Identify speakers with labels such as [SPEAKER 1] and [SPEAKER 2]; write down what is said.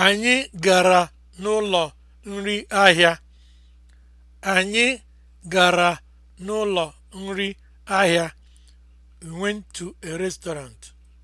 [SPEAKER 1] Anyị gara n'ụlọ nri ahịa. Anyị gara n'ụlọ nri ahịa. We went
[SPEAKER 2] to a restaurant.